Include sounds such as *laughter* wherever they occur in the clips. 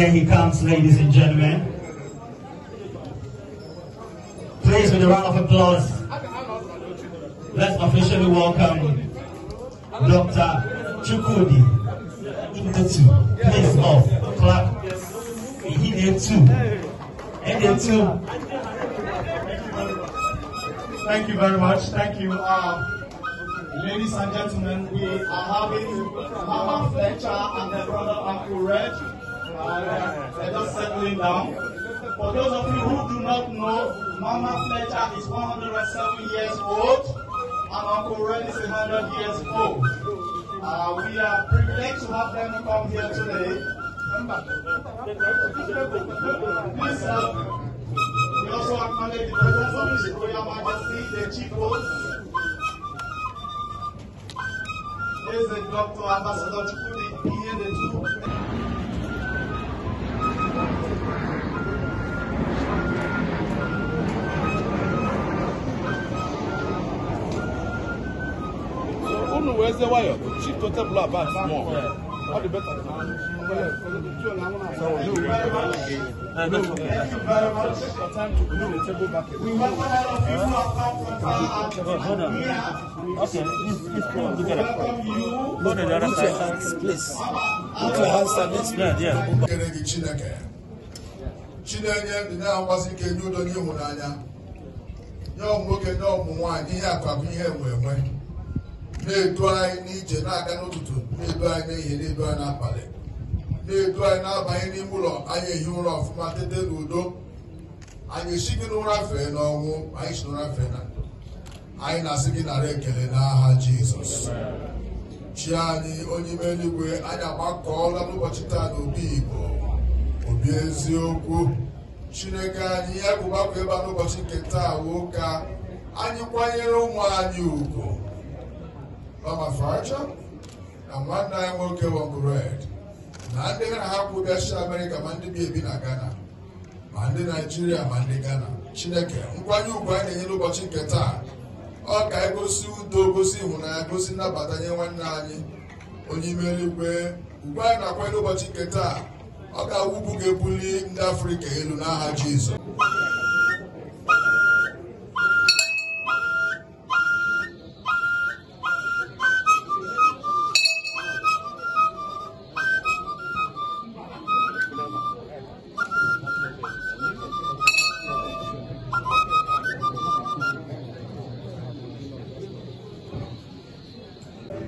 there he comes, ladies and gentlemen. Please, with a round of applause, let's officially welcome Dr. Chukudi Indotu. Please, off, clap. He did And Thank you very much. Thank you. Uh, Ladies and gentlemen, we are having Mama Fletcher and her brother Uncle Red uh, they're just settling down. For those of you who do not know, Mama Fletcher is 107 years old and Uncle Ren is 100 years old. Uh, we are privileged to have them come here today. Please, uh, we also acknowledge the presence of His Royal Majesty, the Chief Host, the Dr. Ambassador the two. unu wee zewa ya chi tote bụla bat mọ ọ dị beta Okay, Put your hands, please. Put please. na-akwasị ka enye ụdọ nye ịhụnanya nye ọmụ nwoke nye ọmụ nwaanyị ihe akụ akụ ihe enwe enwe na-edu anyị n'ije na-aga n'ụtụtụ na-edu anyị n'ehihie na-edu anyị n'abalị na-edu anyị na-abanye n'ime ụlọ anyị ehi ụra ọfụma tete n'udo anyị esi gị n'ụra fee n'ọnwụ anyị si n'ụra fee na ndụ anyị na-asị gị nara ekele n'aha Jizọs chi anyị onye ime eluigwe anyị agbakọọla n'ụbọchị taa na obi Igbo obi eziokwu Chineke anyị ya bụ gbakọ ebe a n'ụbọchị nke taa woo anyị kwanyere ụmụ anyị ugwu Ramaphosa na nwanne anyị nwoke Wongred na ndị na-ahapụ bịachi Amerịka ma ndị bi ebi na Ghana ma ndị Naijiria ma ndị Ghana Chineke nkwanye ugwu anyị na-enye n'ụbọchị nke taa ọ ka egosi udo gosi ịhụnanya gosi nnabata nye nwanne anyị onye ime eluigwe anyị na-akwanye n'ụbọchị nke taa ọ ga-awụbu ga-ebuli ndị Afrịka elu n'aha Jizọs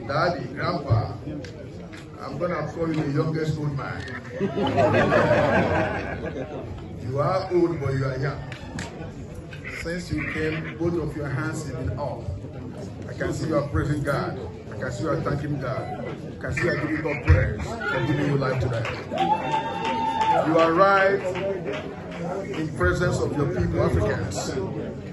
Daddy, Grandpa, I'm going to call you the youngest old man. *laughs* you are old, but you are young. Since you came, both of your hands have been off. I can see you are praising God. I can see you are thanking God. I can see you are giving God praise for giving you life today. You arrived in presence of your people, Africans.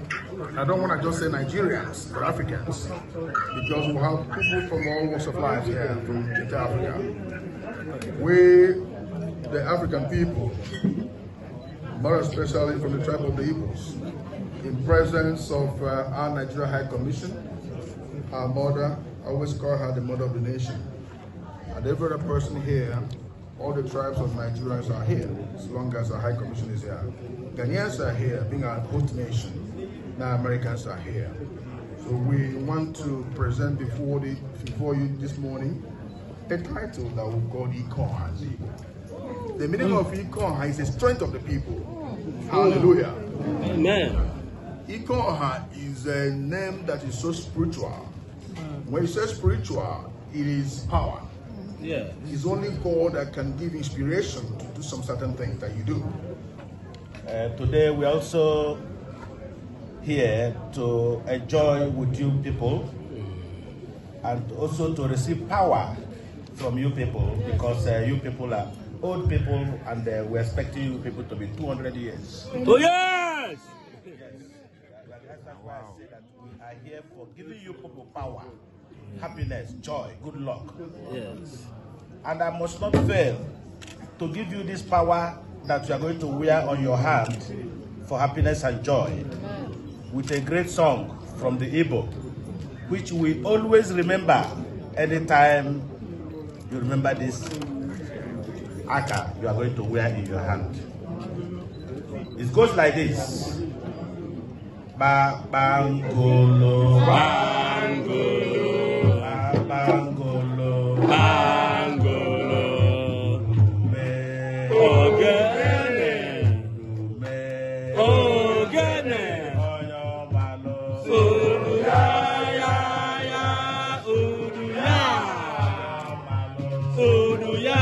I don't want to just say Nigerians, but Africans, because we have people from all walks of life here from Africa. We, the African people, more especially from the tribe of the Igbos, in presence of uh, our Nigeria High Commission, our mother, I always call her the mother of the nation, and every other person here all the tribes of Nigerians are here, as long as the High Commission is here. Ghanaians are here, being our host nation. Now Americans are here. So we want to present before, the, before you this morning a title that we call Econ The meaning of Econ is the strength of the people. Hallelujah. Amen. Ikoha is a name that is so spiritual. When you say spiritual, it is power. Yeah. it's only God that can give inspiration to do some certain things that you do. Uh, today we're also here to enjoy with you people and also to receive power from you people because uh, you people are old people and uh, we're expecting you people to be 200 years. Two years! Yes. That's why I say that we are here for giving you people power happiness, joy, good luck. Yes. And I must not fail to give you this power that you are going to wear on your hand for happiness and joy with a great song from the Igbo, which we always remember anytime you remember this aka you are going to wear in your hand. It goes like this. Ba bangolo, bangolo. Hallelujah.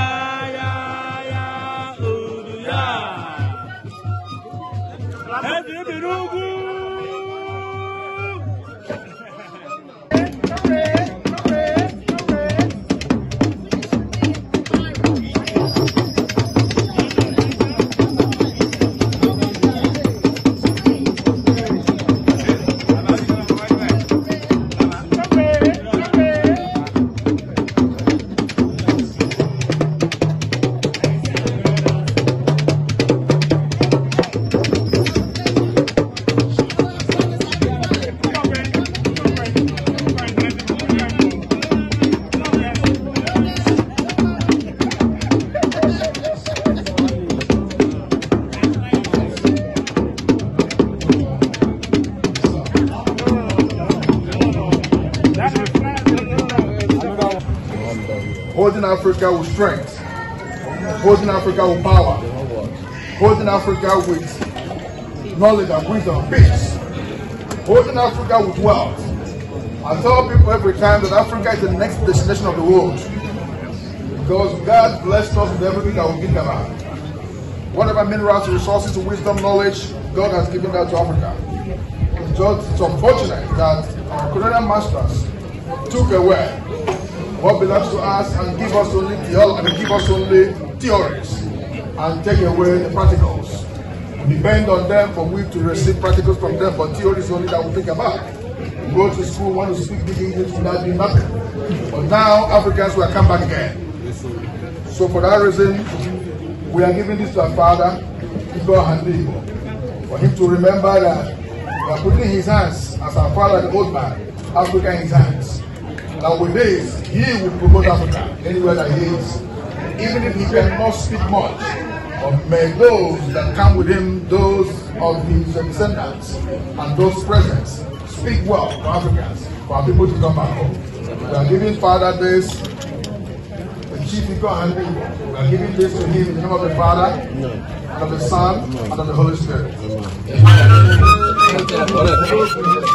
Poison Africa with strength. Poison Africa with power. Poison Africa with knowledge and wisdom, peace. Poison Africa with wealth. I tell people every time that Africa is the next destination of the world. Because God blessed us with everything that we them out. Whatever minerals, resources, wisdom, knowledge, God has given that to Africa. It's just it's unfortunate that our colonial masters took away what belongs to us and give us only theology, give us only theories and take away the practicals. We depend on them for we to receive practicals from them, but theories only that we think about. We go to school, want to speak big English, will not be nothing. But now Africans will come back again. So for that reason, we are giving this to our father, Igbo Handigo, for him to remember that we are putting his hands as our father, the old man, Africa in his hands that with this, he will promote Africa anywhere that he is. Even if he cannot speak much, but may those that come with him, those of his descendants, and those present, speak well for Africans, for our people to come back home. We are giving Father this, the chief Igor and We are giving this to him in the name of the Father, and of the Son, and of the Holy Spirit. Amen.